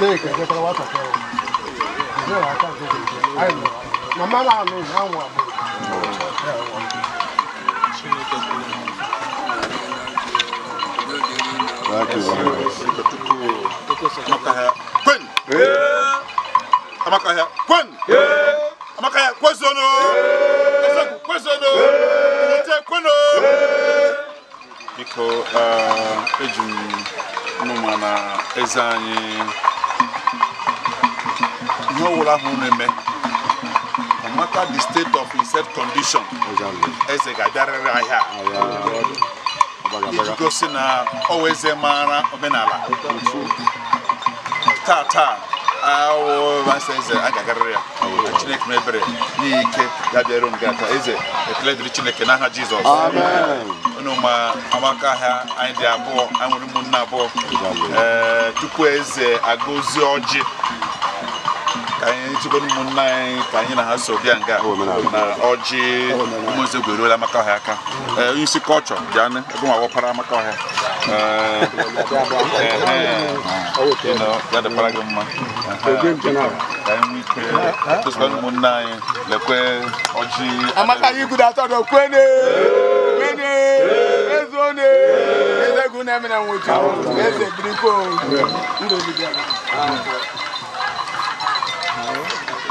na-eke jetara nwatakịrị na biko uh, eji na eze anyị ihe ọwụla ahụ n'eme eme no matter the state of his condition eze ga-abịarịrị ahịa iji gosi na ọwa eze maara omenala taa taa awụmasị eze a ga-agarịrị ya chineke m ebere n'ike ya gị aka eze ekele dịrị chineke n'aha jizọs ma amaka ahịa anyị dị abụọ anyị nwere ụmụnne abụọ ee eh, tupu eze agọzie ọjị kanye nchikwa ni mụnna anyị ka na ha so bịa nga na ọjị ụmụnze oh, gwere ole amaka ọhịa aka isi kọlchọ bịa ebe nwa wọpara amaka ọhịa eh, eh, eh, ya dịkwara gị mma ka anyị ike tụsịkwa ụmụnna anyị lekwe ọjị amaka anyị gudo atọ dọ kwene kwene ezone ezegwu na-emere nwụjụ eze birikwo ndụ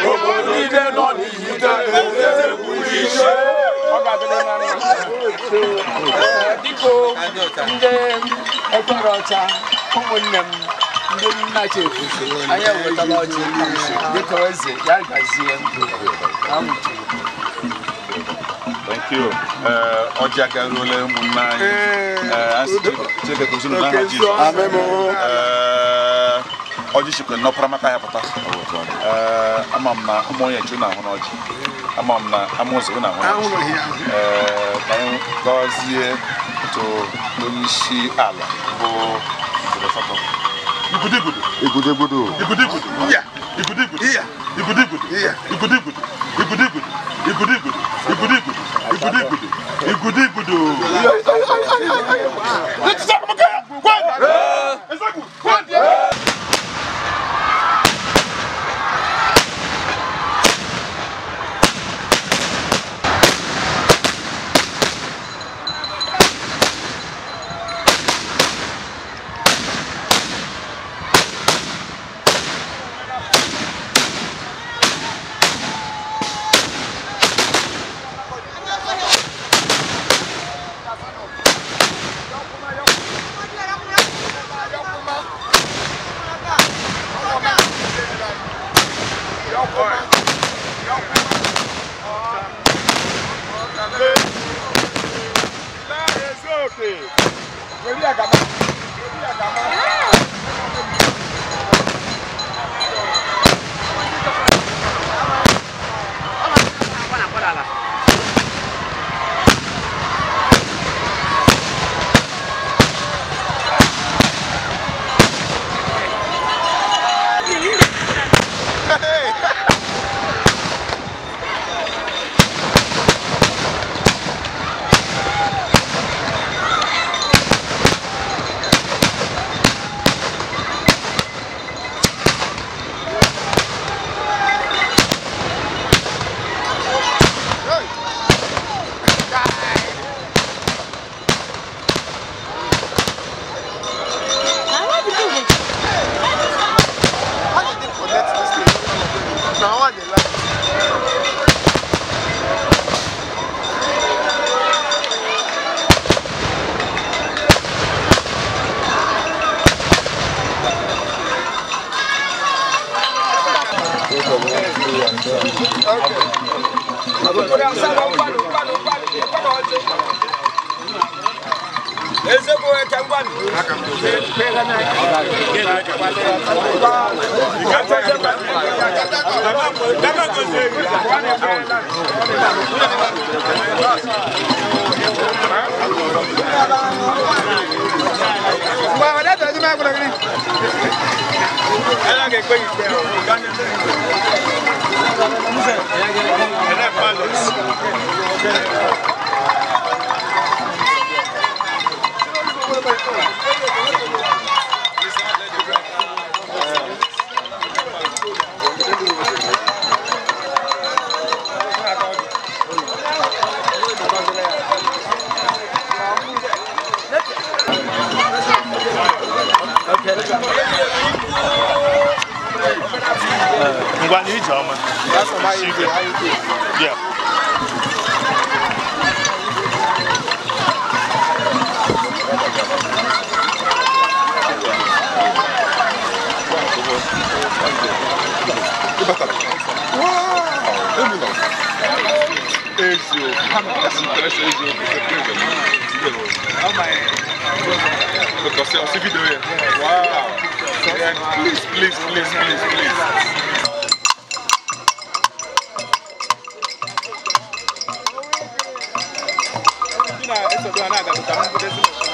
gbogbo ndị ọkpara ọcha ụmụnne m ndị nna chefu anyị ewetala ọchị dịka eze ya gazie Thank you. Ọjị aka ruola ụmụnne anyị. Chineke kụziri ọjị chikwe n'ọpara maka ya pụta ama m na ụmụ onye ju na ahụ n'ọjị ama m na amụzụ na ahụ n'ọjị ka anyị gọzie to n'isi ala bụ igudugudu igudugudu igudugudu igudugudu igudugudu igudugudu igudugudu igudugudu igudugudu igudugudu igudugudu sè é. Orí àgàmà. Orí àgàmà. ezeko ɛtɛ 我呢？你讲嘛？you. Sometimes I use you to play the man. How my? Because I see video here. Wow. Yeah, please, please, please, please, please. Ina, essa do Anaga, do Tamanho, do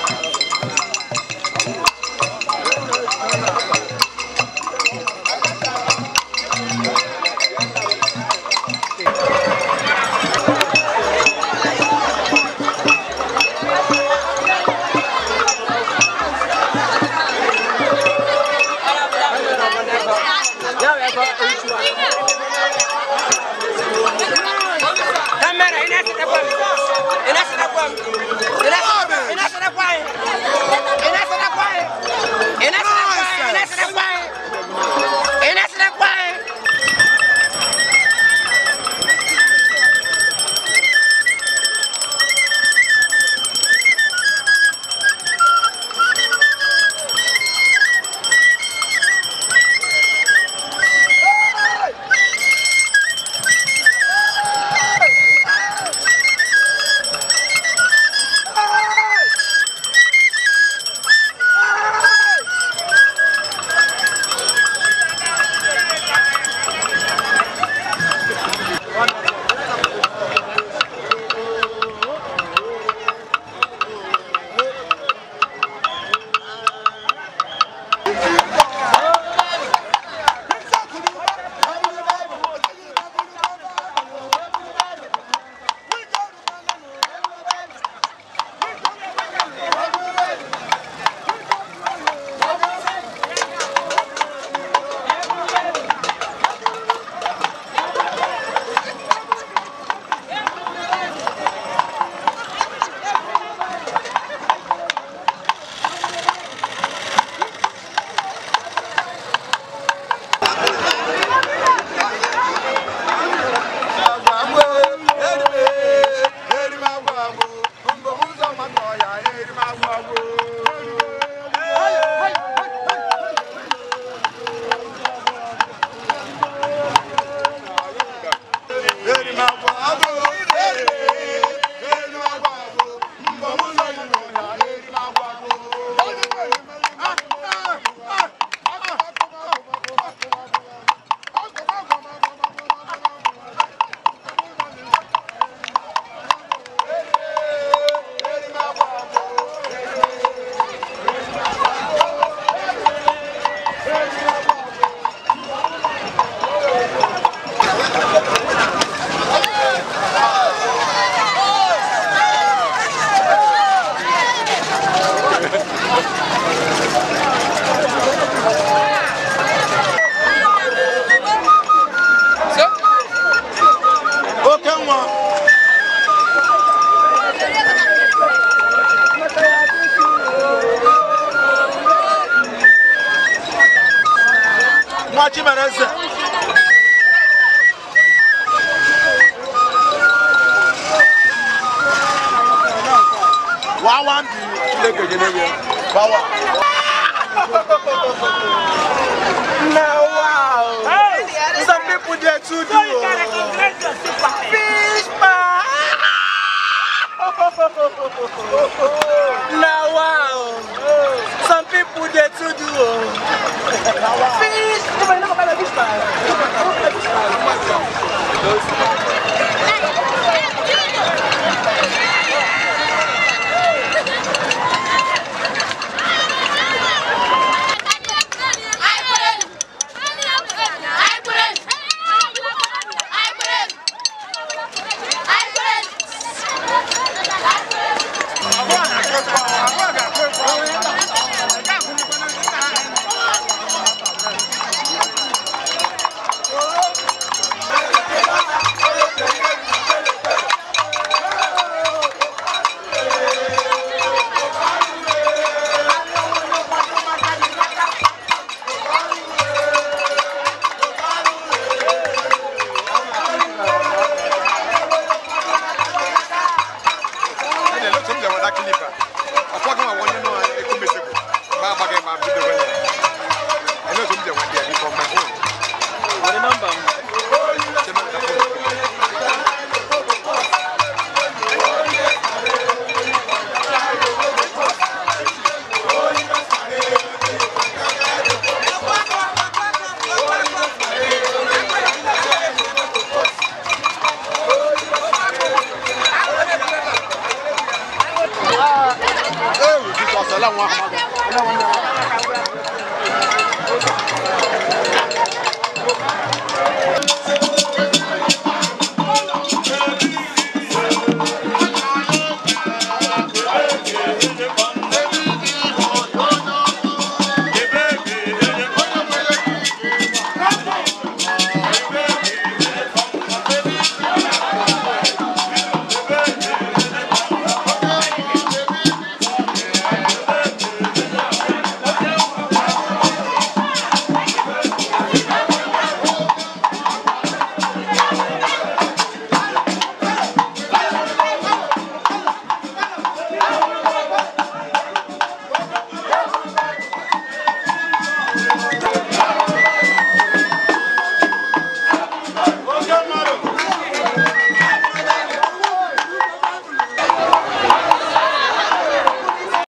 wawa bi kile kejele yɛ wawa. na wow some people dey too do o fish pie na wow some people dey too do o fish pie. dá clipa.